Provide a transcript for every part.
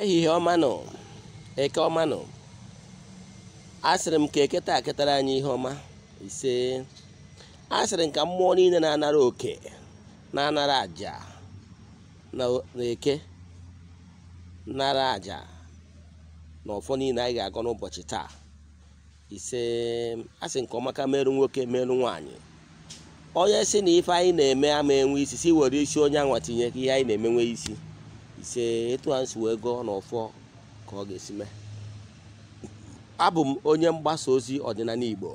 ehihie ọmanụ eke ọmanụ asịrị m ka eketa aketara anyị ihe ọma ise asịrị m ka mmụọ niile na-anara oke na-anara aja na eke nara aja na ọfọ niile anyị ga agọ n'ụbọchị taa ise asị nke ọma ka merụ nwoke merụ nwaanyị onye si na ife anyị na-eme ama enwe isi si were isi onye anwa tinye ihe anyị na-emenwe isi ise ịtụ a wee gụọ n'ụfọ ka ọ ga-esi mee abụ m onye mgbasa ozi ọdịnala Igbo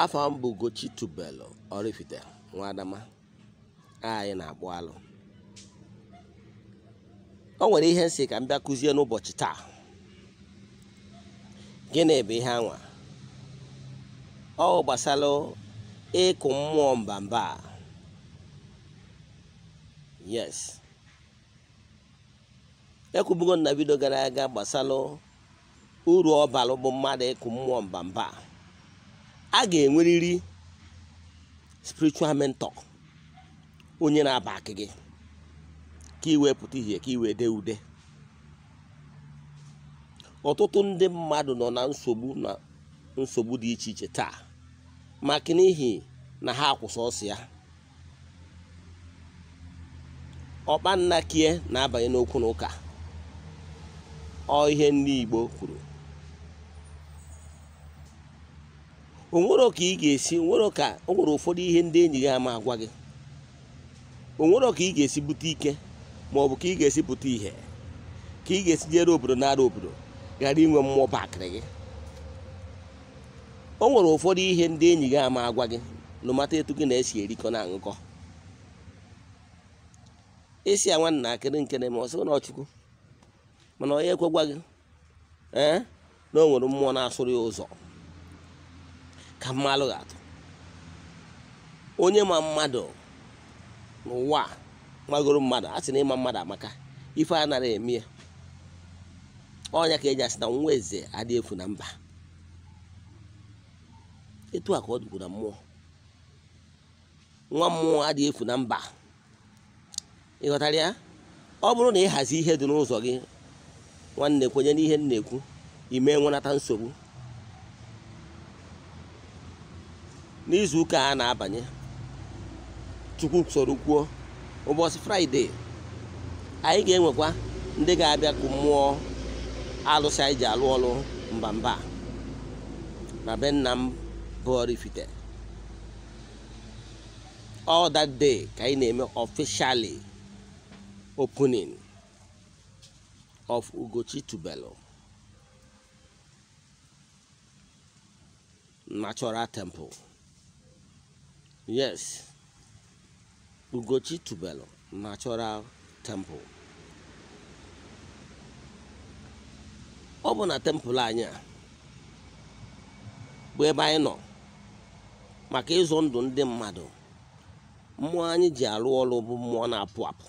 afọ m bụ Gochitubelu Oraifite nwa anyị na-akpụ alụ o nwere ihe nsị ka m bịa kụzie n'ụbọchị taa gịnị bụ ihe anwa ọ gbasara ịkụ mmụọ mba a yes ekwubugo na vidio gara aga gbasara uru ọbalụ bụ mmadụ ịkụ mmụọ mba a ga enweriri spiritual mentor onye na-aba akị gị ka iwee pụta ihe ka iwee dee ude ọtụtụ ndị mmadụ nọ na nsogbu na nsogbu dị iche iche taa maka n'ihi na ha akwụsị ọsọ ya ọkpa kie na-abanye n'okwu na ụka ọ ihe ndị Igbo kwuru onwero ka ị ga-esi onwere ka o nwere ụfọdụ ihe ndị enyi gị ama agwa gị onwero ka ị ga-esi bute ike ma ọ bụ ka ị ga-esi bute ihe ka ị ga-esi jere obodo nara obodo ghara inwe mmụọ bakịrị gị o nwere ụfọdụ ihe ndị enyi gị ama agwa gị n'ụmata etu gị na-esi erikọ na aṅụkọ isi a nwantakịrị nke na ọ sịrị na ọchukwu mana onye ekwegwa gị ee eh, na o nwere mmụọ na-asụrụ ya ụzọ ka mma alụghị atụ onye ma mmadụ n'ụwa magoro mmadụ a sị na ịma mmadụ amaka ife a nara eme ya ọnya ka eji asị na nwa eze adị efu na mba etu a ka ọ dịkwu na mmụọ nwa mmụọ adịghị efu na mba ịghọtara ya ọ bụrụ na ị hazi ihe dị n'ụzọ gị nwanne kwenye n'ihe nna ekwu ime nwenata nsogbu n'izu ụka a na-abanye chukwu soro kwuo ụbọchị fraịde anyị ga-enwekwa ndị ga-abịa kụ mmụọ alụsị anyị ji alụ ọrụ mba mba na be nna m bụ ka anyị na-eme ọfishali. opening of Ugochi tubelo Natural Temple. Yes, Ugochi Tubelu Natural Temple. Ọ bụ na temple anyị a bụ ebe anyị nọ maka ịzụ ndụ ndị mmadụ mmụọ anyị ji arụ ọrụ bụ mmụọ na-apụ apụ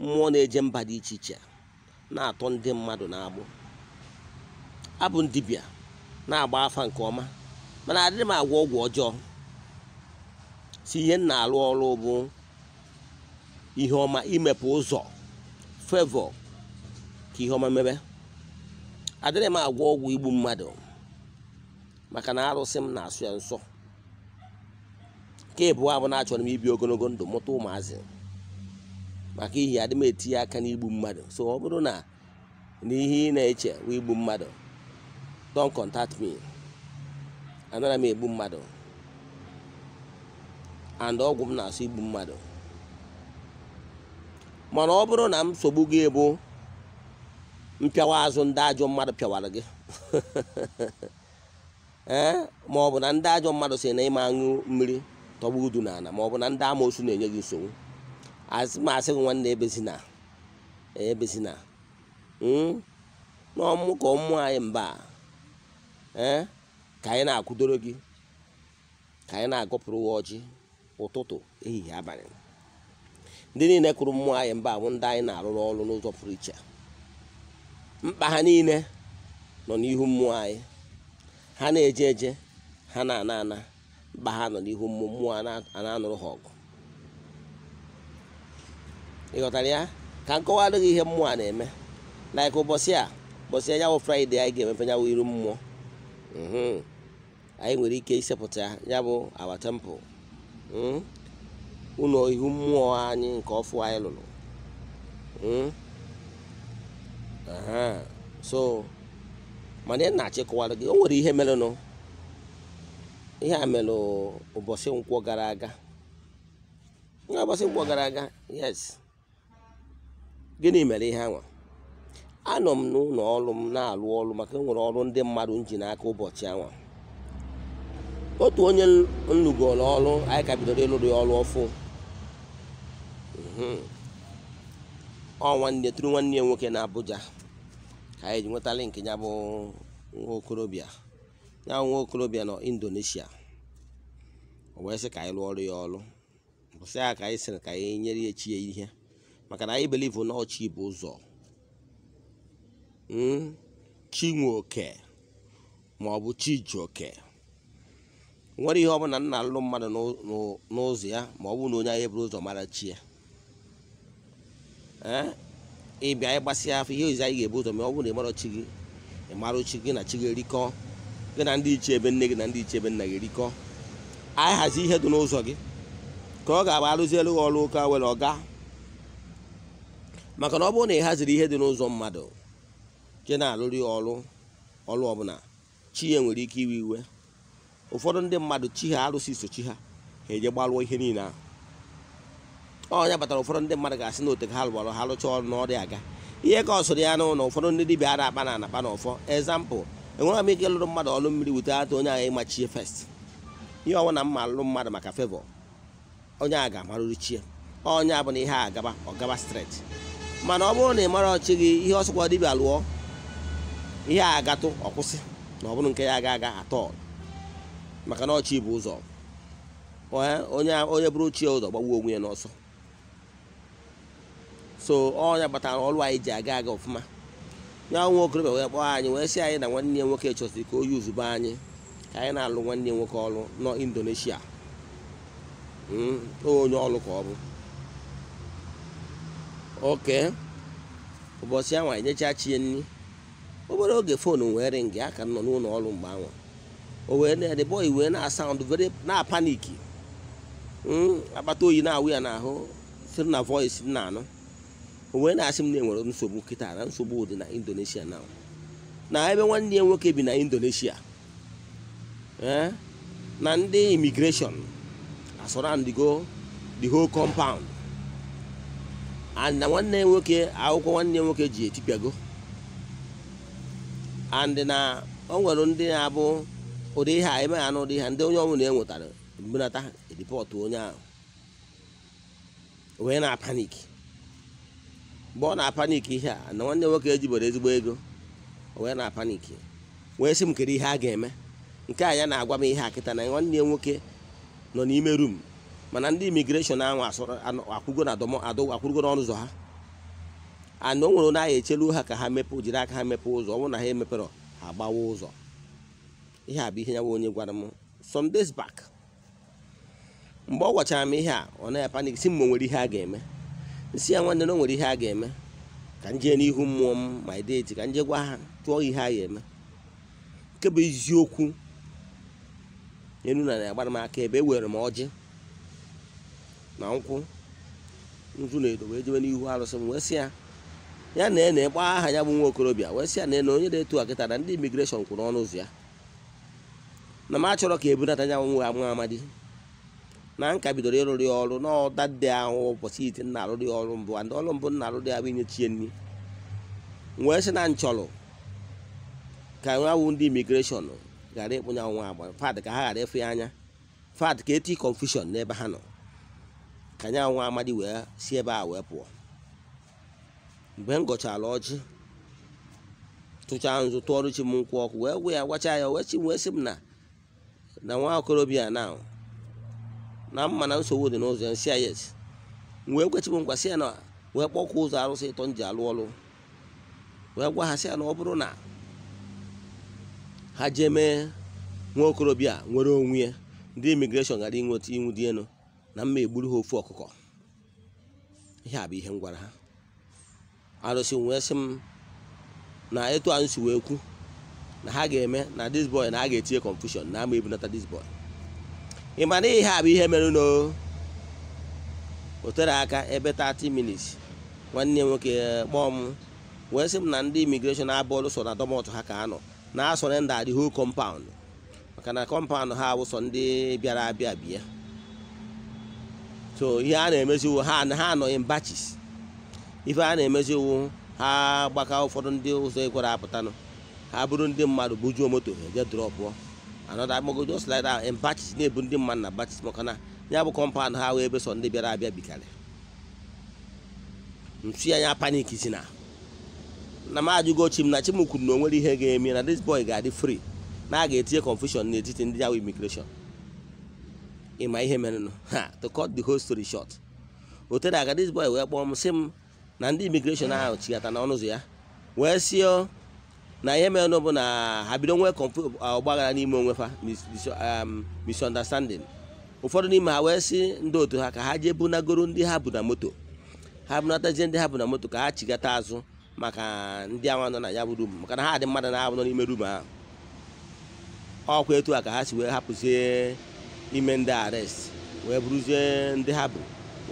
mmụọ na-eje mba dị iche iche na-atọ ndị mmadụ na-agbụ abụ m na-agba afa nke ọma mana adịghị m agwọ ọgwụ ọjọọ si ihe m na-alụ ọrụ bụ ihe ọma imepe ụzọ fevọ ka ihe ọma mebe adịghị m agwọ ọgwụ igbu mmadụ maka na arụsị m na-asụ ya nsọ nke ịbụọ abụ na achọrọ m ibi ogologo ndụ mụta ụmụazị maka ihi adị m etinye aka n'igbu mmadụ so ọ bụrụ na n'ihe ị na-eche wụ igbu mmadụ don contact me anaghị m egbu mmadụ and ọgwụ m na-asụ igbu mmadụ mana ọ bụrụ na m sogbu gị ebu mpịawa azụ ndị ajọ mmadụ pịawara gị ee eh? ma ọ bụ na ndị ajọ mmadụ si na ịma aṅụ mmiri tọgbu udu n'ala ma ọ na ndị amoosu na-enye gị nsogbu asị m asị gị nwanne ebezina ebezina hmm? n'ọmụ ka ụmụ anyị mba eh? ka anyị na-akwụdoro gị ka anyị na agụpụrụ uwe ọjị ụtụtụ ehihie abalị ndị niile kụrụ mmụọ anyị mba bụ ndị anyị na-arụrụ ọrụ n'ụzọ pụrụ iche mkpa ha niile nọ n'ihu mmụọ anyị ha na-eje eje ha na-ana ana mkpa ha nọ n'ihu mmụọ mmụọ a na-anụrụ ha ọgụ ịghọtara ya ka nkọwa gị ihe mmụọ a na-eme laik ụbọchị a ụbọchị anyanwụ fraịde anyị ga-emefe nyanwụ iru mmụọ mhm. anyị nwere ike isepụta ya bụ awa tempụ ụlọ ihu mmụọ anyị nke ọfụ anyị lụrụ so mana ị na-achị kọwara gị o nwere ihe merenụ ihe a mere ụbọchị nkwọ gara aga ụbọchị nkwọ gara aga yes gịnị mere ihe anwa anọ m n'ụlọ ọrụ m na-alụ ọrụ maka enwere ọrụ ndị mmadụ m ji n'aka ụbọchị anwa otu onye nlụgoro ọrụ anyị ka bidoro ịlụrụ ya ọrụ ọfụ ọ nwanne tụrụ nwanne ya nwoke na Abuja ka anyị ji nwetara nke ya bụ nwa okorobịa ya nwa okorobịa nọ Indonesia o wee sị ka anyị lụọ ọrụ ya ọrụ bụsị ya ka anyị sịrị ka anyị nyere ya chi ya ihe maka na anyị beli na ọchị bụ ụzọ hmm? chinwe oke ma ọ bụ chijioke nwere ihe ọbụla nna alụ mmadụ n'ụzọ ya ma ọ bụ na onye anyị bụrụ ụzọ mara chi ya eh? ịbịa ịgbasị gbasịa afọ ihe ozi anyị ga-ebu ụzọ ma ọ bụ na ịmara chi gị ịmara chi gị na chi gị erikọ gị na ndị iche ebe nne gị na ndị iche ebe nna gị erikọ anyị hazi ihe dị n'ụzọ gị ka ọ ga-abụ arụzielu gị ọrụ ụka were ọ gaa maka na ọ bụrụ na ị haziri ihe dị n'ụzọ mmadụ jee na-alụrị ọrụ ọrụ ọbụla chi ya nwere ike iwe iwe ụfọdụ ndị mmadụ chi ha arụsị so chi ha ha eje gbalụọ ihe niile ahụ ọ nyabatara batara ụfọdụ ndị mmadụ ga-asị na ote ha lụgbara ha rụcha ọrụ na ọrịa aga ihe ka ọ sụrụ ya n'ụlọ ụfọdụ ndị dibịa a akpa na anakpa na ọfọ ezampụ enwere m ike lụrụ mmadụ ọrụ mmiri wute ata onye agha ịmachie fest ihe ọwụ na mma alụrụ mmadụ maka fevọ onye agha amarụrụ chie onye abụ na ihe agaba gaba streti mana ọ bụrụ na ị mara ọchị gị ihe ọsọkwa dibịa lụọ ihe a agatụ ọkwụsị na ọ bụrụ nke ya aga aga atọ maka na ọchị bụ ụzọ onye onye bụrụ chi ụzọ gbagbuo onwe ya n'ọsọ so ọnya gbatara ọrụ anyị ji aga aga ọfụma nye nwa okorobịa wee kpọọ anyị wee si anyị na nwanne ya nwoke chọsiri ka o yuzuba anyị ka anyị na-alụ nwanne ya nwoke ọrụ nọ Indonesia hmm, onye ọrụ ka ọ bụ oke ụbọchị anwa chi chie nri obere oge foonu wee ringi aka nọ n'ụlọ ọrụ mgbe anwa o wee na-ede bọị wee na-asaụndụ vere na-apaniki hmm, akpata oyi na-awụ ya n'ahụ siri na voice na-anụ o wee na-asị m na-enwere nsogbu nkịta na nsogbu dị na Indonesia na na ebe nwanne ya nwoke bi na Indonesia eh? na ndị imigreshọn asọrandigo the whole compound na nwanne ya nwoke akwụkwọ nwanne ya nwoke ji etipịago and na o nwere ndị na-abụ ụdị ihe a emeghị anụ ụdị ihe ndị onye na enwetara mbunata ripọtụ onye ahụ wee na panik mgbe ọ na-apanik ihe a na nwanne nwoke ejibere ezigbo ego wee na panik wee sị m kere ihe a ga-eme nke a ya na-agwa m ihe a kịta na nwanne ya nwoke nọ n'ime rum mana ndị imigreshọn ahụ akwụgo na akwụrụgo n'ọnụ ụzọ ha ana o nwere na ahụ echelu ha ka ha mepee jiri aka ha mepe ụzọ ọ bụrụ na ha emepere ha gbawa ụzọ ihe a bụ ihe ya nwa onye gwara m some back mgbe ọ gwachara m ihe a ọ naghị panik si m ma nwere ihe a ga-eme si ya nwanne na o nwere ihe a ga-eme ka m jee n'ihu mmụọ m ma ideeti ka m jee gwa ha tụọ ihe a ga-eme nke bụ eziokwu enu na na-agbara m aka ebe e were m ọjị na nkwụ nzu na edo wee jebe n'ihu arụsị m wee sị ya ya na ene gbaa aha ya bụ nwa okorobịa wee sị ya na ene onye na eto akịta na ndị imigreshọn kwụrụ ọnụ ụzọ ya na m achọrọ ka ebunata ya nwa nwa amadi na nka bidoro ịrụrụ ya ọrụ n'ọda dị ahụ ụbọchị ite nna arụrụ ọrụ mbụ ndị ọrụ mbụ nna arụrụ ya bụ chie nri wee sị na nchọrọ ka nwawụ ndị imigreshọn ghara ịkpụnya nwa agba fad ka ha ghara ịfụ ya anya fad ka eti kọnfushọn n'ebe ha nọ ka anya nwa amadi wee si ebe a wee pụọ mgbe m gọchara ọjị tụchaa nzụ tụọrụ chi m nkwụ ọkụ wee wee ya gwacha ya wee chi wee sị m na na nwa okorobịa na na mma na nsogbu dị n'ụzọ nsị ya wee kwechi m nkwa sị ya na wee kpọkwụ ụzọ arụsị ịtọ nji alụ ọlụ wee gwa ha sị ya na ọ bụrụ na ha jee mee nwa okorobịa nwere onwe ya ndị imigreshọn gara inweta inwu dị elu na mma egburu ha ofu ọkụkọ ihe a bụ ihe m gwara ha arụsị wee sị m na etu anyị si wee kwu na ha ga-eme na this boy na a ga-etinye confusion na ama ebunata this boy ị ma na ihe a bụ ihe mere n'o aka ebe 30 minutes nwanne nwoke eh, kpọọ m wee sị m na ndị imigreshọn abụọlụ so na dọmọtụ ha ka anọ na ndị adịghị kọmpaụndụ maka na kọmpaụndụ ha awụsọ ndị bịara abịa bịa so ihe a na-emezi iwu ha anọghị batches ife a na-emezi ha gbaka ụfọdụ ndị ụzọ ekwere apụtanụ ha bụrụ ndị mmadụ bujuo moto eje drọpụọ anọda agbagodo slida in batches na-ebu ndị mmadụ na batches maka na ya bụ kọmpaụnd ha wee ebe ndị bịara abịa bikarị nsu ya panik si na na m ajụgo chim na chim na o nwere ihe ga-eme na dis boy ga-adị free na a ga-etinye confusion n'etiti ndị awa immigration ịma ihe nụ ha to cut the whole story short otere aga this boy wee kpọọ m sị m na ndị imigreshọn ahụ chigata na ọnụ ụzọ ya wee sịọ na ihe merenụ bụ na ha bido nwee ọgbaghara n'ime onwe fa um, misunderstanding ụfọdụ n'ime ha wee sị ndị otu ha ka ha jee bunagoro ndị ha bụ na moto ha bunatazie ndị ha bụ na moto ka ha chigata azụ maka ndị awa nọ na ya bụ rum maka na ha dị mmadụ na-abụ n'ime rum ahụ ọkwa etu a ka ha si wee hapụzie ime ndị arest wee bụrụzie ndị ha bụ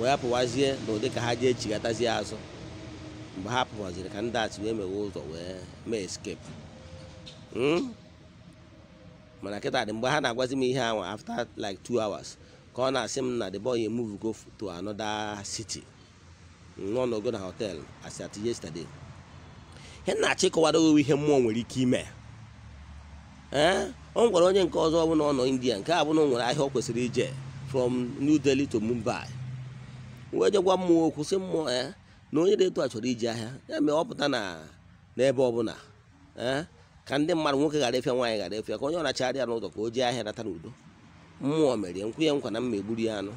wee pụwazie n'ụdị ka ha jee chigatazie azụ mgbe ha pụwaziri ka ndị achị wee mewe ụzọ wee mee eskepu hmm? mana kịta dị mgbe ha na-agwazi m ihe ahụ after like 2 hours ka ọ na-asị m na the boy move go to another city nọ n'ogo na hotel as at yesterday he na-achọ ịkọwado ihe mmụọ nwere ike ime ee ọ gwara onye nke ọzọ ọbụla ọ nọ india nke a bụna o nwere ahịa ọ kwesịrị ije from new delhi to mumbai wee jegwa mmụọ okwu sị mmụọ ya eh, na onye dị etu a chọrọ iji ahịa ya mee ọ pụta na n'ebe ọbụla ee eh, ka ndị mmadụ nwoke ghara efịa nwaanyị ghara efịa ka onye ọ nachagharịa n'ụzọ ka o jee ahịa nata n'udo mmụọ mere nkwu ya nkwa na mma egburu ya anụ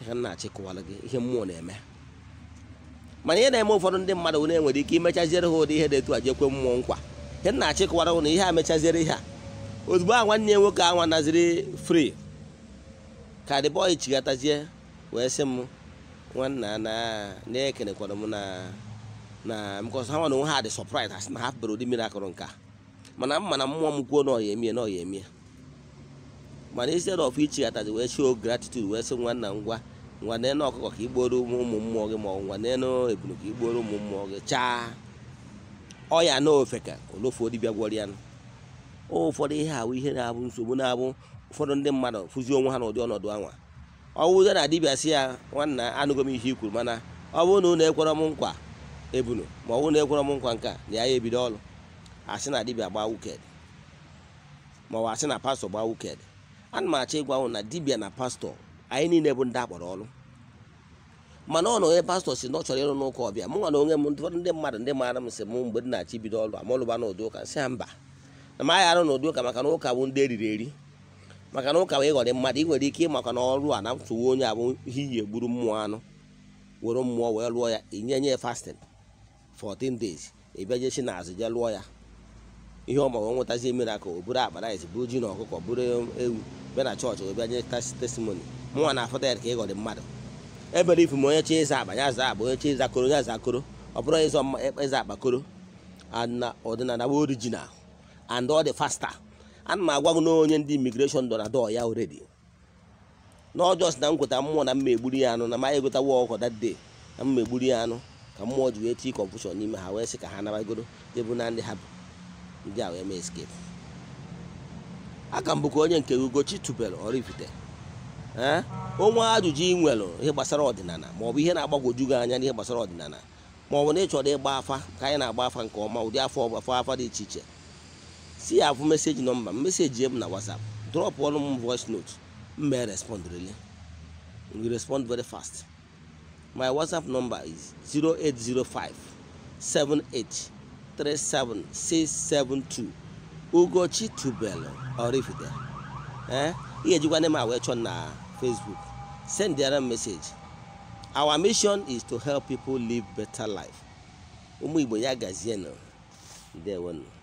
ihe nna na gị ihe mmụọ na-eme mana ihe na-eme ụfọdụ ndị mmadụ na-enwere ike imechaziere ha ụdị ihe dị etu a jekwe mmụọ nkwa nke nna achịkọwara na ihe a mechaziere ihe a ozugbo a nwanne ya nwoke ahụ anaziri fri ka the bọyị chigatazie wee sị m nwanna na na m na na because ha onwe ha dị surprise ha na ha bere ụdị mmiri akụrụ nka mana m mana mmụọ m kwuo na ọya emie na ọya emie mana instead of ichighatazi wee show gratitude wee sị nwanna ngwa nwanne ọkụkọ ka igboro ụmụ mmụọ gị ma ọ bụ nwanne ebunu ka igboro ụmụ mmụọ gị chaa ọya na ofeka olofu dibịa gwọrọ ya ụfọdụ ihe ahụ ihe na-abụ nsogbu na-abụ ụfọdụ ndị mmadụ fụzi onwe ha n'ụdị ọnọdụ anwa ọwụzo na dibịa si ya nwanna anụgo m ihe ikwuru mana ọ bụrụ na ụnụ ekwere m nkwa ebunu ma ọ bụrụ na ekwere m nkwa nke na ya ebido ọrụ asị na dibịa gbaa wuked ma ọ asị na pastọ gbaa wuked ana m achọ ịgwa na dibịa na pastọ anyị niile bụ ndị akpọrọ ọrụ mana ọ nọ onye pastọ si na ọ chọrọ ịrụ n'ụka ọbịa mụ nwa na onwe m ụfọdụ ndị mmadụ ndị maara m si m mgbe dị na-achị bido ọrụ amalụba n'ụdị ụka nsị ya mba na m agha arụ n'ụdị ụka maka na ụka bụ ndị eriri eri maka na ụka bụ ịghọrị e mmadụ ị nwere ike ịmakwa na ọrụ a na mtụwa onye abụ ihe iyi egburu mmụọ anụ were mmụọ wee lụọ ya inye nye fastin 14 days ịbịa e jechi na azụ je lụọ ya ihe ọ ma wee nwetazie miracle o buru akparaịs buru ji na ọkụkọ buru ewu bịa na chọọchị wee bịa nye testimony mụnwa na afọta ya ka ịghọrị e mmadụ ebere ifu ma onye chọọ ịza akpa ya zaa akpa onye chọọ ịza koro ya zaa koro ọ bụrụ ịzọ mma ịza e, e akpa koro ọdịnala bụ orijinal and ọ dị faster ana m agwa gị na onye ndị imigreshọn dọ na dọọ ya oredi na ọjọs na nkweta mmụọ na mma egburu ya anụ na ma egotawa ọkọ that na mma egburu ya anụ ka mmụọ ji wee tii kọnfushọn n'ime ha wee sị ka ha nabagoro debụ na ndị ha bụ ndị a wee mee escape aka mbụ ka onye nke ugochi tubelu ọrifite Eh? onwe ajụjụ ị nwere ihe gbasara ọdịnala maọbụ ihe na-agbagwoju gị anya n'ihe gbasara ọdịnala maọbụ na ịchọrọ ịgba afa ka anyị na-agba afa nke ọma ụdị afọ ọgbafa afa dị iche iche si ya bụ meseji nọmba meseji m na WhatsApp drọpụ ọnụ m voice note mmee respond really we respond very fast my WhatsApp number is 0805 Ugochi Tubelu Oraifite eh? ihe ejikwa ndị m a wee chọọ na Facebook. Send the other message. Our mission is to help people live better life. Umu Iboya Gaziano. There one.